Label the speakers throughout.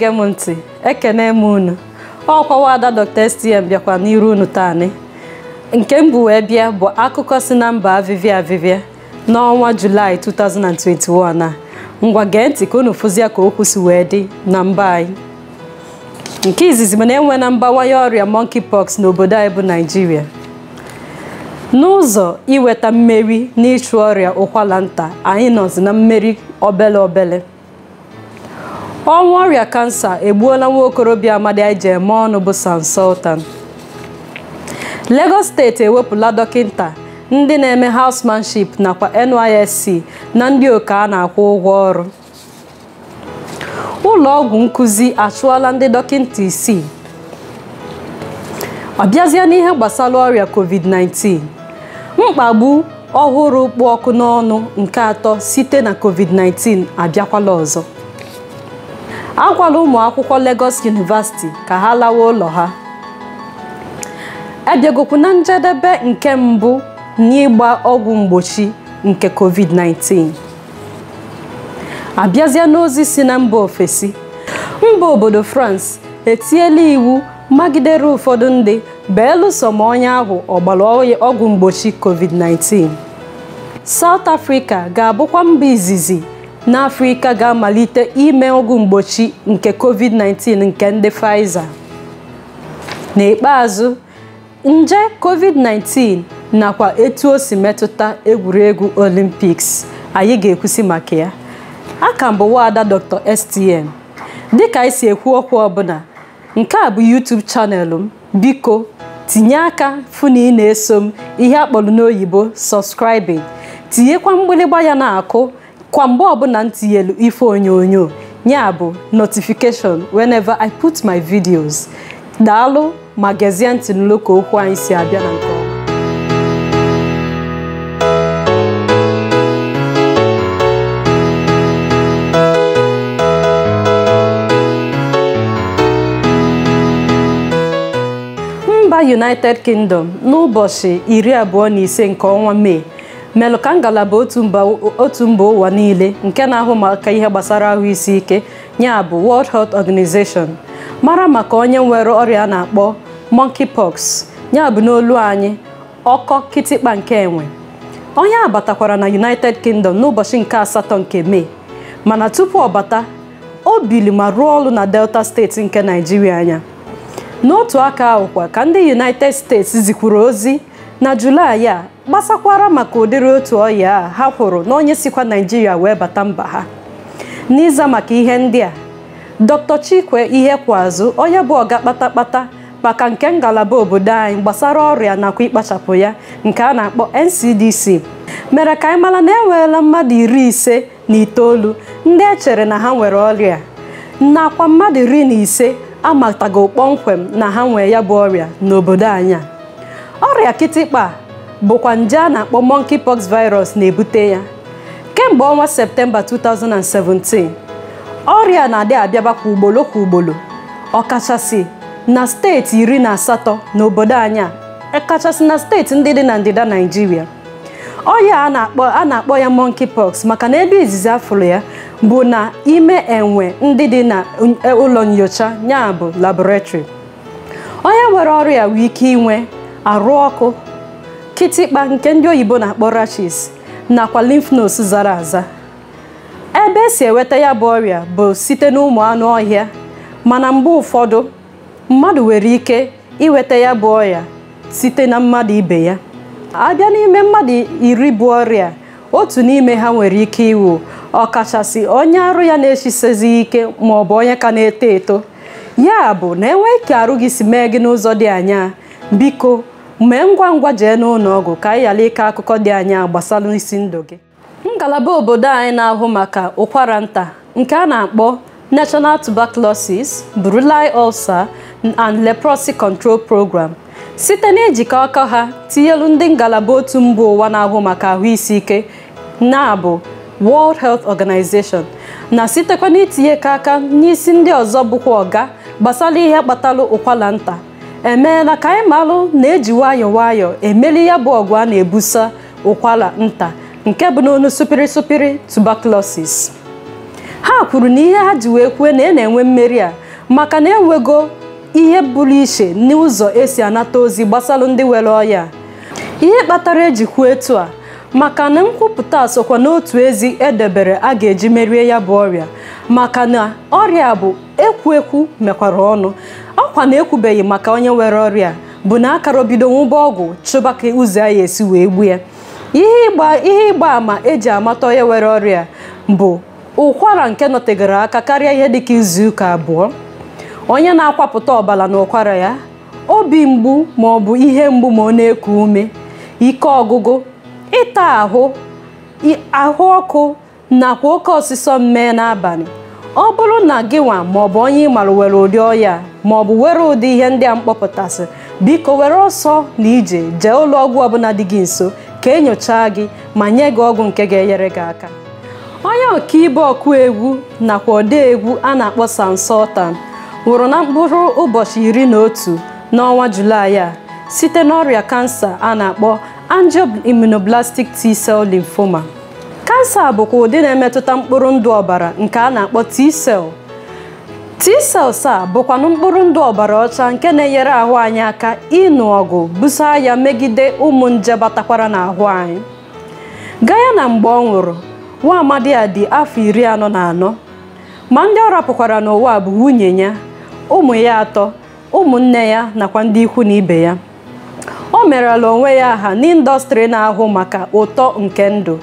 Speaker 1: na-ege m ntị ekene m unu ọkwawa ada Dr. STM bịakwa n'iru unu taani nke m bụ wee bịa bụ akụkọ si na mba avivia avivia n'ọnwa julaị 2021 a ngwa gee ntị ka unu fụzie ka okwu si wee dị na mba anyị nke izizi mana enwe na mbawanye ọrịa monkeypox n'obodo anyị bụ naijiria n'ụzọ iweta mmeri n'ịchụ ọrịa ụkwala nta anyị nọzi na mmeri obele obele ọnwụ ọrịa kansa egbuola nwa okorobịa amadi Ije eme ọnụ bụ Sansultan Lagos steeti ewepụla dọkịta ndị na-eme housemanship nakwa NYSC na ndị oke a na-akwụ ụgwọ ọrụ ụlọ ọgwụ nkụzi achụọla ndị dọkịta isii ọbịazie n'ihe gbasara ọrịa covid-19 mkpagbu ọhụrụ kpụ ọkụ n'ọnụ nke atọ site na covid-19 abịakwala ọzọ agwala ụmụ akwụkwọ Lagos University ka ha lawa ụlọ ha abịagokwu e na njedebe nke mbụ n'ịgba ọgwụ mgbochi nke COVID-19 abịazie n'ozi si na mba ofesi mba obodo France etinyela iwu magidere ụfọdụ ndị belụsọ ma onye ahụ ọgbara ọgwụ mgbochi COVID-19 South Africa ga-abụkwa mba izizi n'afrika ga-amalite ime ọgwụ mgbochi nke covid-19 nke ndị Pfizer n'ikpeazụ nje covid-19 nakwa etu o si metụta egwuregwu Olympics anyị ga-ekwusi maka ya a ka mbụ wada Dr. STM dịka anyị si ekwu okwu ọbụla nke a bụ YouTube chanel m biko tinye aka fụ na eso m ihe akpọrọ n'oyibo subscribing tinyekwa mgbịrịgba ya na-akụ kwa mgbe ọbụla m tinyelu ife onyonyo ya bụ notification whenever I put my videos daalụ ma gezie ntị n'ụlọ okwu anyị si abịa na nke ọma United Kingdom n'ụbọchị iri abụọ na ise nke ọnwa Mee Melukangala ngalaba otu mba ụwa niile nke na-ahụ maka ihe gbasara ahụ isi ike ya bụ World Health Organization mara maka onye nwere ọrịa a na-akpọ monkeypox ya bụ n'olu anyị ọkọ kịtịkpa nke enwe onye a batakwara na United Kingdom n'ụbọchị nke asatọ nke Mee mana tupu ọ bata o bili ma rụọ ọrụ na Delta steeti nke Naijiria anya n'otu aka ahụkwa ka ndị United States zikwuru ozi na julaị a gbasakwara maka ụdịrị otu ọya a ha kwụrụ na onye sikwa naijiria wee bata mba ha n'ịza maka ihe ndị a dr chikwe ihe kwazụ onye bụ ọga kpatakpata maka nke ngalaba obodo anyị gbasara ọrịa nakwa ịkpachapụ ya nke a na-akpọ ncdc mere ka anyị mara na enweela mmadụ iri ise na itoolu ndị echere na ha nwere ọrịa nakwa mmadụ iri na ise amatago kpọmkwem na ha nwee ya bụ ọrịa n'obodo anyị a ọrịa kịtịkpa bụkwa nje a na-akpọ monkeypox virus na-ebute ya kemgbe ọnwa septemba 2017 ọrịa na-adị abịaba kwa ugboro kwa ugboro ọkachasị na steeti iri na asatọ n'obodo anyị a e kachasị na steeti ndị dị na ndịda naijiria ọrịa a na-akpọ a na-akpọ ya monkeypox maka na ebe izizi afụrụ ya bụ na ime enwe ndị dị na ụlọ nyocha ya bụ onye nwere ọrịa wee ike inwe arụ ọkụ kịtịkpa nke ndị oyibo na-akpọ rachis nakwa lymph nodes zara aza ebe esi enweta ya bụ ọrịa bụ site n'ụmụ anụ ọhịa mana mgbe ụfọdụ mmadụ nwere ike inweta ya bụ ọrịa site na mmadụ ibe ya abịa n'ime mmadụ iri bụ ọrịa otu n'ime ha nwere ike iwu ọkachasị onye arụ ya na-echisezi ike ma ọ bụ onye ka na-eto eto ya bụ na enweghị ike arụ gị si mee gị n'ụzọ dị anya biko mgbe ngwa ngwa jee n'ụlọ ọgwụ ka anyị ghara ike akụkọ dị anya gbasara isi ndụ gị ngalaba obodo anyị na-ahụ maka ụkwara nta nke a na-akpọ National Tuberculosis Bruline Ulcer and Leprosy Control Program site na ejikọ aka ha tinyelu ndị ngalaba otu mba ụwa na-ahụ maka ahụ isi ike na-abụ World Health Organization na sitekwa n'itinye ka aka n'isi ndị ọzọ bụkwa ọga gbasara ihe kpatara ụkwara nta emeela ka anyị malụ na-eji nwayọ nwayọ emeli ya bụ ọgụ a na-ebusa ụkwara nta nke bụ n'onu supiri supiri tuberculosis ha kwuru na ihe ha ji wee kwue na ị e na-enwe mmeri a maka na enwego ihe bụrụ iche n'ụzọ esi anata ozi gbasalụ ndị were ọya ihe kpatara eji kwuo etu a maka na nkwupụta sokwa n'otu ezi edebere a ga-eji merie ya bụ ọrịa maka na ọrịa bụ ekwu ekwu mekwara ọnụ ọkwa na ekwubeghị maka onye nwere ọrịa bụ na akara obido nwụba ọgwụ chụba ka ụzọ ya esi wee gbu ya ihe ịgba ama eji amata onye nwere ọrịa bụ ụkwara nke nọtegara aka karịa ihe dịka izu ụka abụọ onye na-akwapụta ọbara na ụkwara ya obi mgbu ma ọ bụ ihe mgbu ma ọ na-eku ume ike ọgụgụ ịta ahụ ahụ ọkụ nakwa oke ọsịsọ mmee n'abalị ọ bụrụ na gịnwa maọbụ onye ị mara were ụdị ọya maọbụ were ụdị ihe ndị a mkpọpụtasị biko were ọsọ na ije jee ụlọ ọgwụ ọbụla dị gị nso ka e nyochaa gị ma nye gị ọgwụ nke ga-enyere gị aka onye ibe ọkụ egwu nakwa ọde egwu a na-akpọ sansọtan nwụrụ na mkpụrụ ụbọchị iri na otu n'ọnwa Julaị a site n'ọrịa kansa a na-akpọ angioimmunoblastic T-cell lymphoma kansa bụkwa ụdị na-emetụta mkpụrụ ndụ ọbara nke a na-akpọ t-cell t-cells a bụkwanụ mkpụrụ ndụ ọbara ọcha nke na-enyere ahụ anyị aka ịnụ ọgụ busa ya megide ụmụ nje batakwara n'ahụ anyị gaa ya na mgbe ọ nwụrụ nwa amadi a dị afọ iri anọ na anọ ma ndị ọ rapụkwara n'ụwa bụ nwunye ya ụmụ ya atọ ụmụnne ya nakwa ndị ikwu na ibe ya o merela onwe ya aha n'ịndọstrị na-ahụ maka ụtọ nke ndụ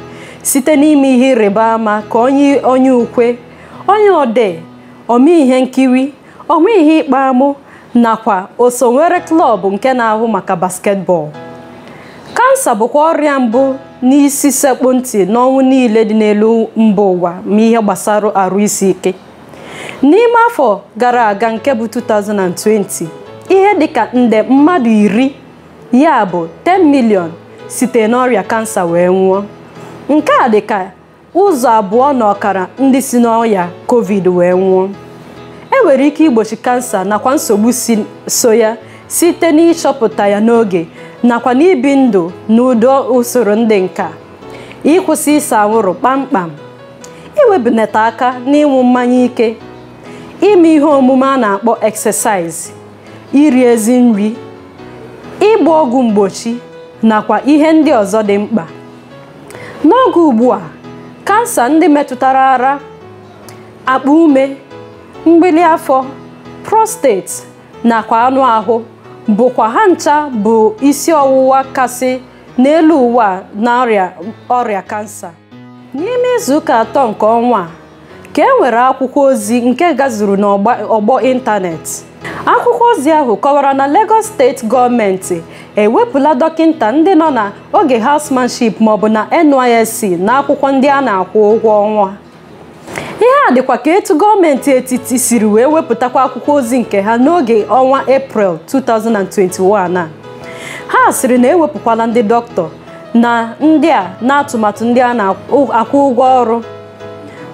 Speaker 1: site n'ime ihe ịrịba ama ka onye onye ukwe onye odee ome ihe nkiri ome ihe ịkpa amụ nakwa oso nwere klọb nke na-ahụ maka basketball kansa bụkwa ọrịa mbụ n'isi sekpu ntị n'ọnwụ niile dị n'elu mba ụwa ma ihe gbasara arụ isi ike n'ime afọ gara aga nke bụ 2020 ihe dịka nde mmadụ iri ya bụ 10 milion site n'ọrịa kansa wee nwụọ nke a dị ka ụzọ abụọ na ọkara ndị si n'ọya covid wee nwụọ e nwere ike igbochi kansa nakwa nsogbu so ya site n'ịchọpụta ya n'oge nakwa n'ibi ndụ na udo usoro ndị nka ịkwụsị ịsa anwụrụ kpamkpam iwebunata aka n'ịnwụ mmanya ike ime ihe omume a na-akpọ exercise iri ezi nri ịgba ọgwụ mgbochi nakwa ihe ndị ọzọ dị mkpa n'oge ugbua kansa ndị metụtara ara akpa ume mgbili afọ prostate nakwa anụ ahụ bụkwa ha ncha bụ isi ọwụwa kasị n'elu ụwa na ọrịa kansa n'ime izuụka atọ nke ọnwa a ka enwere akwụkwọ ozi nke gazuru n'ọgbọ ịntanetị akwụkwọ ozi ahụ kọwara na Lagos steeti gọọmenti ewepụla dọkịta ndị nọ na oge hausmanship maọbụ na NYSC na akwụkwọ ndị a na-akwụ ụgwọ ọnwa ihe a dịkwa ka etu gọọmenti etiti siri wee wepụtakwa akwụkwọ ozi nke ha n'oge ọnwa April 2021 a ha siri na ewepụkwala ndị dọkịta na ndị a na atụmatụ ndị a na-akwụ ụgwọ ọrụ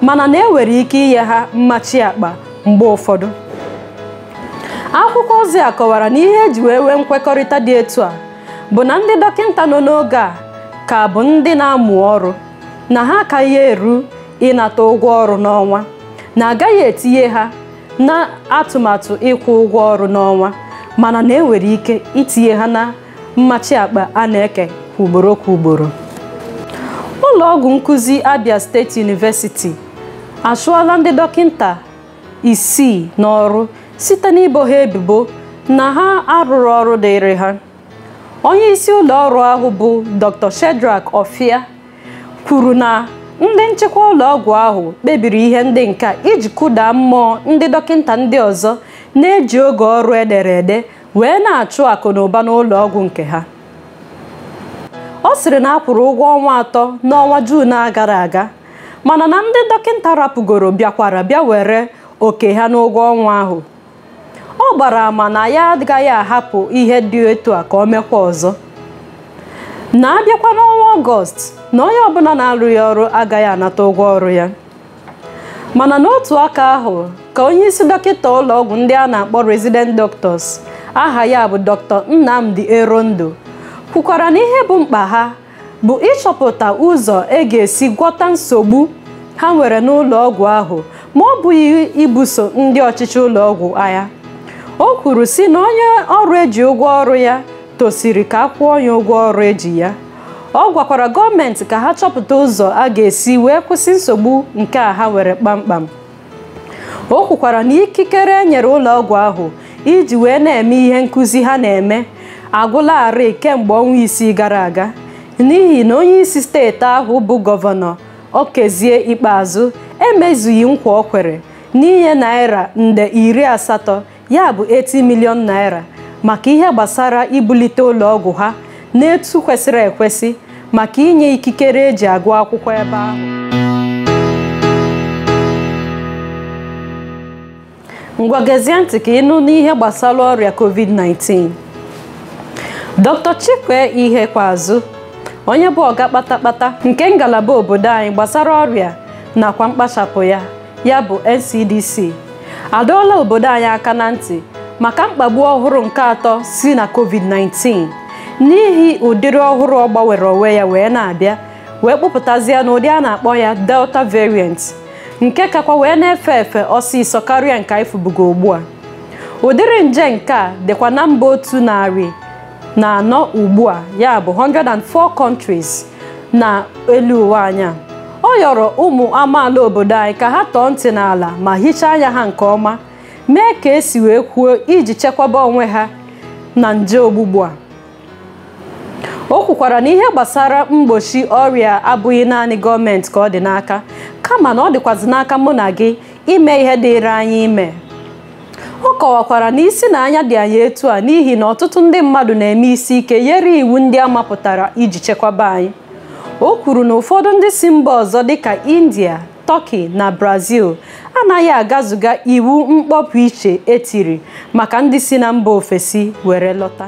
Speaker 1: mana na enwere ike inye ha mmachi akpa mgbe ụfọdụ akwụkwọ ozi a kọwara na ihe eji wee nwee nkwekọrịta dị etu a bụ na ndị dọkịta nọ n'oge a ka bụ ndị na-amụ ọrụ na ha akaghị eru ịnata ụgwọ ọrụ n'ọnwa na agaghị etinye ha na atụmatụ ịkwụ ụgwọ ọrụ n'ọnwa mana na enwere ike itinye ha na mmachi akpa a na-eke kwa ugboro kwa ugboro ụlọ ọgwụ nkụzi Abia State University achụọla ndị dọkịta isii n'ọrụ site n'ibo ha ebubo na ha arụrụ ọrụ dịịrị ha onye isi ụlọ ọrụ ahụ bụ dr shedrack ofia kwuru na ndị nchekwa ụlọ ọgwụ ahụ kpebiri ihe ndị nka iji kụda mmụọ ndị dọkịta ndị ọzọ na-eji oge ọrụ edere ede wee na-achụ akụ na ụba n'ụlọ ọgwụ nke ha ọ sịrị na a kwụrụ ụgwọ ọnwa atọ n'ọnwa Juun a gara aga mana na ndị dọkịta rapụgoro bịakwara bịa were oke ha n'ụgwọ ọnwa ahụ ọ gbara ama na ya agaghị ahapụ ihe dị otu a ka ọ mekwa ọzọ na abịakwa n'ọnwa ọgọst na onye ọbụla na-arụghị ọrụ agaghị anata ụgwọ ọrụ ya mana n'otu aka ahụ ka onye isi dọkịta ụlọ ọgwụ ndị a na-akpọ resident doctors aha ya bụ dr nnamdi erondo kwukwara na ihe bụ mkpa ha bụ ịchọpụta ụzọ e ga-esi gwọta nsogbu ha nwere n'ụlọ ọgwụ ahụ ma ọ bụghị ibuso ndị ọchịchị ụlọ ọgwụ agha o kwuru sị na onye ọrụ eji ụgwọ ọrụ ya tosiri ka a kwụọ ya ụgwọ ọrụ eji ya ọ gwakwara gọọmenti ka ha chọpụta ụzọ a ga-esi wee kwụsị nsogbu nke a ha were kpamkpam o kwukwara na ikikere e nyere ụlọ ọgwụ ahụ iji wee na-eme ihe nkụzi ha na-eme agwụlarị kemgbe ọnwa isii gara aga n'ihi na onye isi steeti ahụ bụ gọvanọ okezie ikpeazụ emezughị nkwa ọ kwere n'inye naira nde iri asatọ ya bụ 80 million naira maka ihe gbasara ibulite ụlọ ọgwụ ha n'etu kwesịrị ekwesị maka inye ikikere eji agụ akwụkwọ ebe ahụ ngwa gezie ntị ka ịnụ n'ihe gbasara ọrịa covid-19 dr chikwe ihe kwazụ onye bụ ọga kpatakpata nke ngalaba obodo anyị gbasara ọrịa nakwa mkpachapụ ya ya bụ ncdc adọọla obodo anyị aka na ntị maka mkpagbu ọhụrụ nke atọ si na covid-19 n'ihi ụdịrị ọhụrụ ọ gbanwere onwe ya wee na-abịa wee kpụpụtazie ụdị a na-akpọ ya delta variant nke kakwa wee na-efe efe ọsịsọ karịa nke anyị fụbugo ugbu a ụdịrị nje nke a dịkwa na mba otu narị na anọ ugbu a ya bụ 104 countries na elu ụwa anya. a ọ yọrọ ụmụ amaala obodo anyị ka ha tọọ ntị n'ala ma hichaa anya ha nke ọma mee ka esi wee kwuo iji chekwaba onwe ha na nje ogbugbu a o kwukwara na ihe gbasara mgbochi ọrịa abụghị naanị gọọmenti ka ọ dị n'aka kama na ọ dịkwazị n'aka mụ na gị ime ihe dịịrị anyị ime ọ kọwakwara na isi na anya dị anyị etu a n'ihi na ọtụtụ ndị mmadụ na-eme isi ike nyere iwu ndị a mapụtara iji chekwaba anyị o kwuru na ụfọdụ ndị si mba ọzọ dịka india turkey na brazil anaghị agazuga iwu mkpọpụ iche etiri maka ndị si na mba ofesi were lọta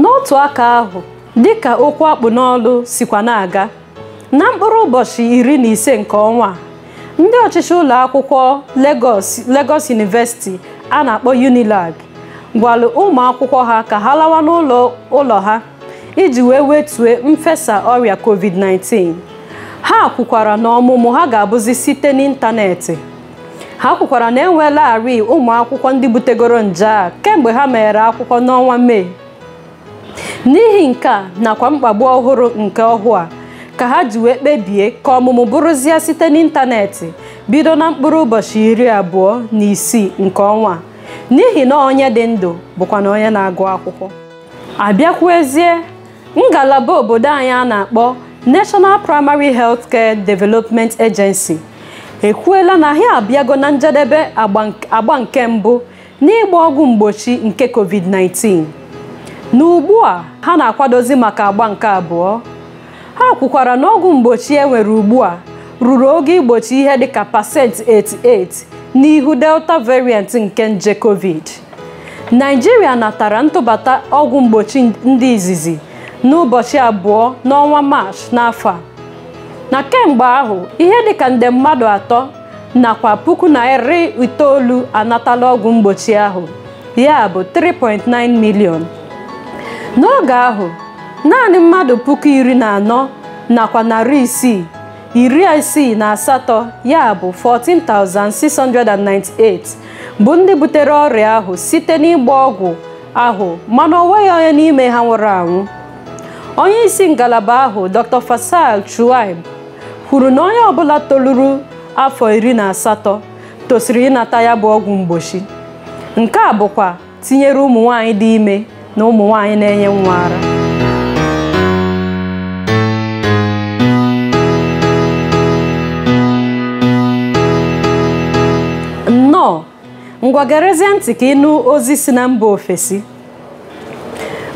Speaker 1: n'otu aka ahụ dịka okwu akpụ n'ọlụ sikwa na-aga na mkpụrụ ụbọchị iri na ise nke ọnwa ndị ọchịchị ụlọ akwụkwọ legos University a na-akpọ UNILAG gwalụ ụmụ akwụkwọ ha ka ha lawa n'ụlọ ha iji wee wetue mfesa ọrịa covid-19 ha kwukwara na ọmụmụ ha ga-abụzi site n'ịntanetị ha kwukwara na enweelarị ụmụ akwụkwọ ndị butegoro nje a kemgbe ha meghere akwụkwọ n'ọnwa mee n'ihi nke a nakwa mkpagbu ọhụrụ nke ọhụụ a ka ha ji wee kpebie ka ọmụmụ bụrụzie site n'ịntanetị bido na mkpụrụ ụbọchị iri abụọ na isii nke ọnwa n'ihi na onye dị ndụ bụkwa na onye na-agụ akwụkwọ abịakwuezie ngalaba obodo anyị a na-akpọ National Primary Healthcare Development Agency ekwuela na ha abịago na njedebe agba nke mbụ n'ịgba ọgwụ mgbochi nke COVID-19 na a ha na-akwadozi maka agba nke abụọ ha kwukwara na ọgwụ mgbochi e nwere ugbu a ruru oge igbochi ihe dịka pasentị 88 n'ihu delta variant nke nje covid naijiria natara ntụbata ọgwụ mgbochi ndị izizi n'ụbọchị abụọ n'ọnwa Maachị n'afọ a na kemgbe ahụ ihe dịka nde mmadụ atọ nakwa puku na itoolu anatala ọgwụ mgbochi ahụ ya bụ 3.9 miliọn n'oge ahụ naanị mmadụ puku iri na anọ nakwa narị isii iri isii na asatọ ya bụ 14,698 bụ ndị butere ọrịa ahụ site n'ịgba ọgwụ ahụ mana ọ onye n'ime ha nwụrụ anwụ onye isi ngalaba ahụ dr fasal chuaib kwuru na onye ọbụla toluru afọ iri na asatọ tosiri ịnata ya bụ ọgwụ mgbochi nke a bụkwa tinyere ụmụ nwanyị dị ime na ụmụ nwanyị na-enye nwa ara nnọọ ngwagerezie ntị ka ịnụ ozi si na mba ofesi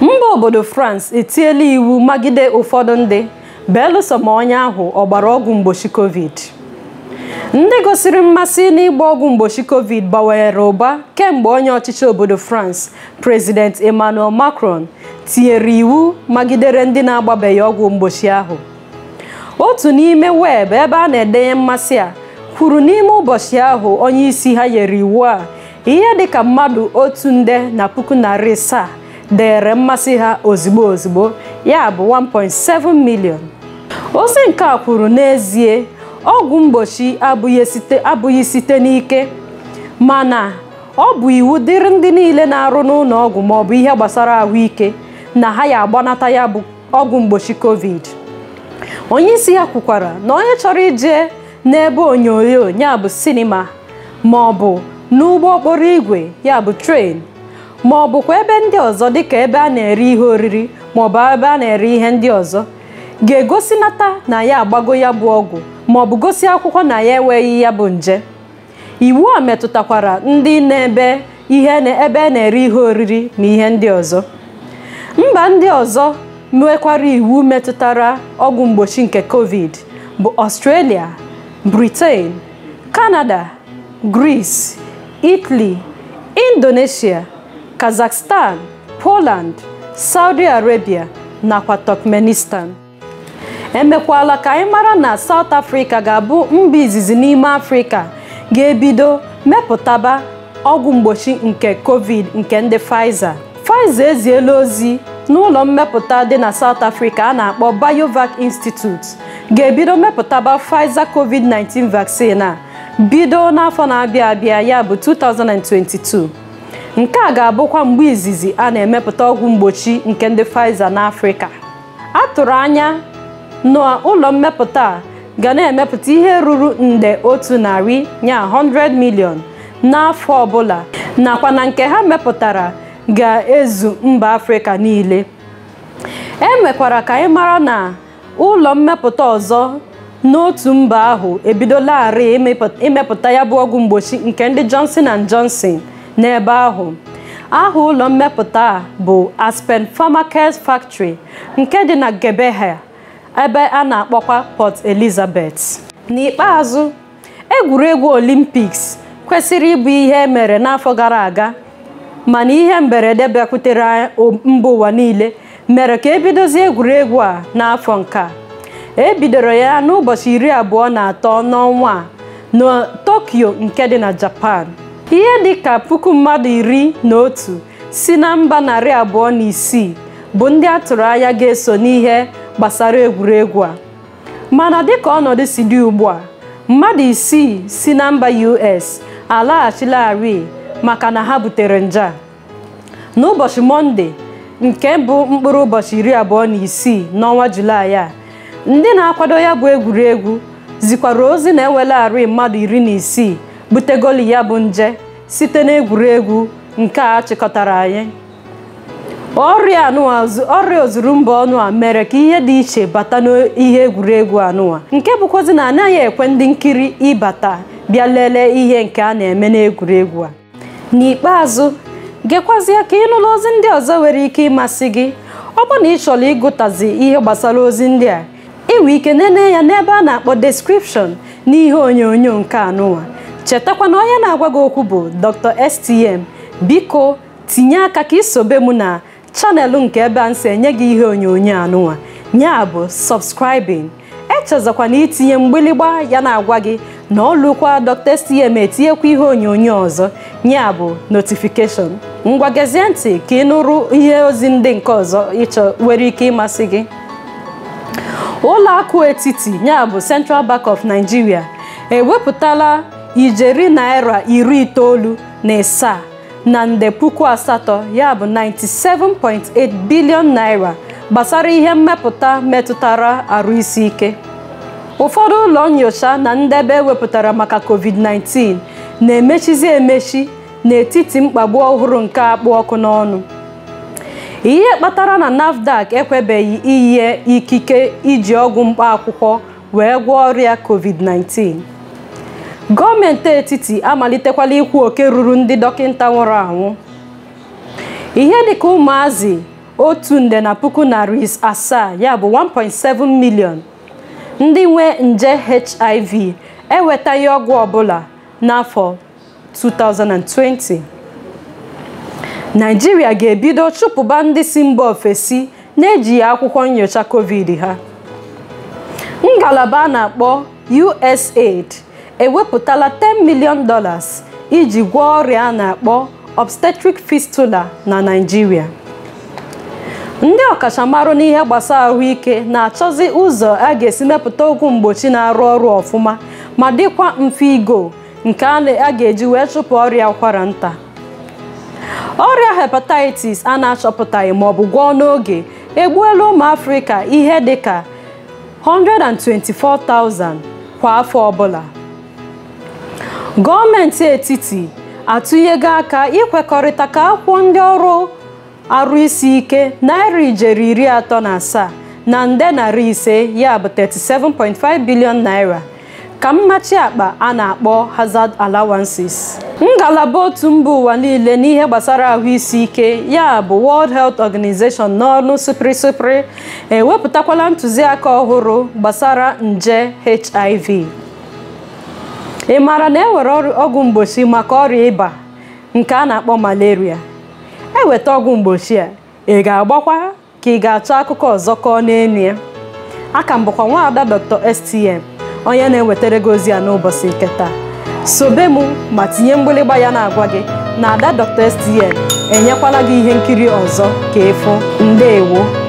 Speaker 1: mba obodo France etiela iwu magide ụfọdụ ndị belụsọ ma onye ahụ ọgbara ọgwụ mgbochi covid ndị gosiri mmasị n'ịgba ọgwụ mgbochi covid gbanwere ụba kemgbe onye ọchịchị obodo France President Emmanuel Macron tinyere iwu magidere ndị na-agbabeghị ọgwụ mgbochi ahụ otu n'ime weebụ ebe a na-edenye mmasị a kwuru n'ime ụbọchị ahụ onye isi ha nyere iwu a ihe dịka mmadụ otu nde na puku narị asaa dere mmasị ha ozigbo ozigbo ya bụ 1.7 milion ozi nke a kwuru n'ezie ọgwụ mgbochi abụghị site n'ike ma na ọ bụ iwu dịrị ndị niile na-arụ n'ụlọ ọgwụ maọbụ ihe gbasara ahụike na ha ya agbanata ya bụ ọgwụ mgbochi covid onye isi ya kwukwara na onye chọrọ ije n'ebe onyonyo ya bụ sinima maọbụ n'ụgbọ okporo ígwè ya bụ tren ma ọ bụkwa ebe ndị ọzọ dịka ebe a na-ere ihe oriri maọbụ ebe a na-ere ihe ndị ọzọ ga-egosinata na ya agbago ya bụ ọgwụ maọbụ gosi akwụkwọ na ya enweghị ya bụ nje iwu a metụtakwara ndị na-ebe ihe ebe na-ere ihe oriri na ihe ndị ọzọ mba ndị ọzọ nwekwara iwu metụtara ọgwụ mgbochi nke covid bụ ọstrelia Britain kanada gris Italy Indonesia Kazakhstan, Poland, Saudi Arabia nakwa Turkmenistan emekwala ka anyị mara na South Africa ga-abụ mba izizi n'ime Afrịka ga-ebido mepụtaba ọgwụ mgbochi nke COVID nke ndị Pfizer Pfizer eziela ozi n'ụlọ mmepụta dị na South Africa a na-akpọ Biovac Institute ga-ebido mepụtaba Pfizer COVID-19 vaccine a bido n'afọ na-abịa abịa ya bụ 2022 nke a ga-abụkwa mgbe izizi a na-emepụta ọgwụ mgbochi nke ndị Pfizer n'Afrịka a tụrụ anya na ụlọ mmepụta a ga na-emepụta ihe ruru nde otu narị ya 100 million n'afọ ọbụla nakwa na nke ha mepụtara ga-ezu mba Afrịka niile e mekwara ka anyị mara na ụlọ mmepụta ọzọ n'otu mba ahụ ebidolarị imepụta ya bụ ọgwụ mgbochi nke ndị Johnson and Johnson n'ebe ahụ aha ụlọ mmepụta a bụ Aspen Pharmaceuticals Factory nke dị na Gebeha ebe a na-akpọkwa Port Elizabeth n'ikpeazụ egwuregwu Olympics kwesịrị ịbụ ihe e mere n'afọ gara aga mana ihe mberede bịakwutere mba ụwa niile mere ka ebidozi egwuregwu a n'afọ nke a ebidoro ya n'ụbọchị iri abụọ na atọ n'ọnwa a na Tokyo nke dị na Japan ihe dịka puku mmadụ iri na otu si na mba narị abụọ na isii bụ ndị a tụrụ anya ga-eso n'ihe gbasara egwuregwu a mana dịka ọnọdụ si dị ugbu a mmadụ isii si na mba US alaghachilarị maka na ha butere nje n'ụbọchị Mọnde nke bụ mkpụrụ ụbọchị iri abụọ na isii n'ọnwa Julaị a ndị na-akwado ya bụ egwuregwu zikwara ozi na-ewelarị mmadụ iri na isii butegoli ya bụ nje site n'egwuregwu nke a chịkọtara anyị ọrịa ọrịa ozuru mba ọnụ a mere ka ihe dị iche bata n'ihe egwuregwu anụwa nke bụkwazi na anaghị ekwe ndị nkiri ịbata bịa lelee ihe nke a na-eme n'egwuregwu a n'ikpeazụ gekwazie ka ịnụla ozi ndị ọzọ nwere ike ịmasị gị ọ bụ na ị chọrọ ịgụtazi ihe gbasara ozi ndị a inwe ike nene ya n'ebe a na-akpọ description n'ihe onyonyo nke anụwa chetakwana na onye na-agwa gị okwu bụ Dr. STM biko tinye aka ka isobe m na chanelụ nke ebe a nsị enye gị ihe onyonyo anụnwa ya bụ subscribing echezọkwa na itinye mgbịlịgba ya na-agwa gị na ọlụkwa Dr. STM etinyekwa ihe onyonyo ọzọ ya bụ notifikeshọn ngwa gezie ntị ka ị nụrụ ihe ozi ndị nke ọzọ ịchọ nwere ike ịmasị gị ụlọ akụ etiti ya bụ Central Bank of Nigeria ewepụtala ijeri naira iri itoolu na ịsaa na nde puku asatọ ya bụ 97.8 bilion naira gbasara ihe mmepụta metụtara arụ isi ike ụfọdụ ụlọ nyocha na ndebe ewepụtara maka covid-19 na-emechizi emechi n'etiti mkpagbu ọhụrụ nke akpụ ọkụ n'ọnụ ihe kpatara na NAFDAC ekwebeghị iyi ikike iji ọgwụ mkpa wee gwọọ ọrịa covid-19 gọọmenti etiti amalitekwala ikwu oke ruru ndị dọkịta nwụrụ anwụ ihe dịka ụmụazị otu nde na puku narị asaa ya bụ 1.7 million ndị nwe nje hiv enwetaghị ọgwụ ọbụla n'afọ 2020 naijiria ga-ebido chụpụba ndị si mba ofesi na-ejighị akwụkwọ nyocha covid ha ngalaba a na-akpọ USAID ewepụtala 10 million dollars iji gwọọ ọrịa a na-akpọ obstetric fistula na naijiria ndị ọkachamara n'ihe gbasara ahụike na-achọzi ụzọ a ga-esi mepụta ọgwụ mgbochi na-arụ ọrụ ọfụma ma dịkwa mfe igo nke a ga-eji wee chụpụ ọrịa ụkwara nta ọrịa hepatitis a na-achọpụtaghị ma ọ bụ gwọọ n'oge egbuola ụmụ afrịka ihe dịka 124,000 kwa afọ ọbụla gọọmenti etiti atụnyego aka ịkwekọrịta ka akwụkwọ ndị ọrụ arụ isi ike naira ijeri iri atọ na asaa na nde narị ise ya bụ 37.5 bilion naira ka mmachi akpa a na-akpọ hazard allowances ngalaba otu mba ụwa niile n'ihe gbasara ahụ isi ike ya bụ World Health Organization n'ọnụ sịpịrị ewepụtakwala ntụziaka ọhụrụ gbasara nje HIV ị maara na e nwere ọgwụ mgbochi maka ọrịa ịba nke a na-akpọ malaria eweta ọgwụ mgbochi a ị ga-agbakwa ka ị ga-achọ akụkọ ọzọ kọọ n'elu ya aka m bụkwa nwaada Dr. STM onye na-ewetara gị ozi a n'ụbọchị nke taa sobe m ma tinye mgbịlịgba ya na-agwa gị na ada Dr. STM enyekwala gị ihe nkiri ọzọ ka ịfụ ndeewo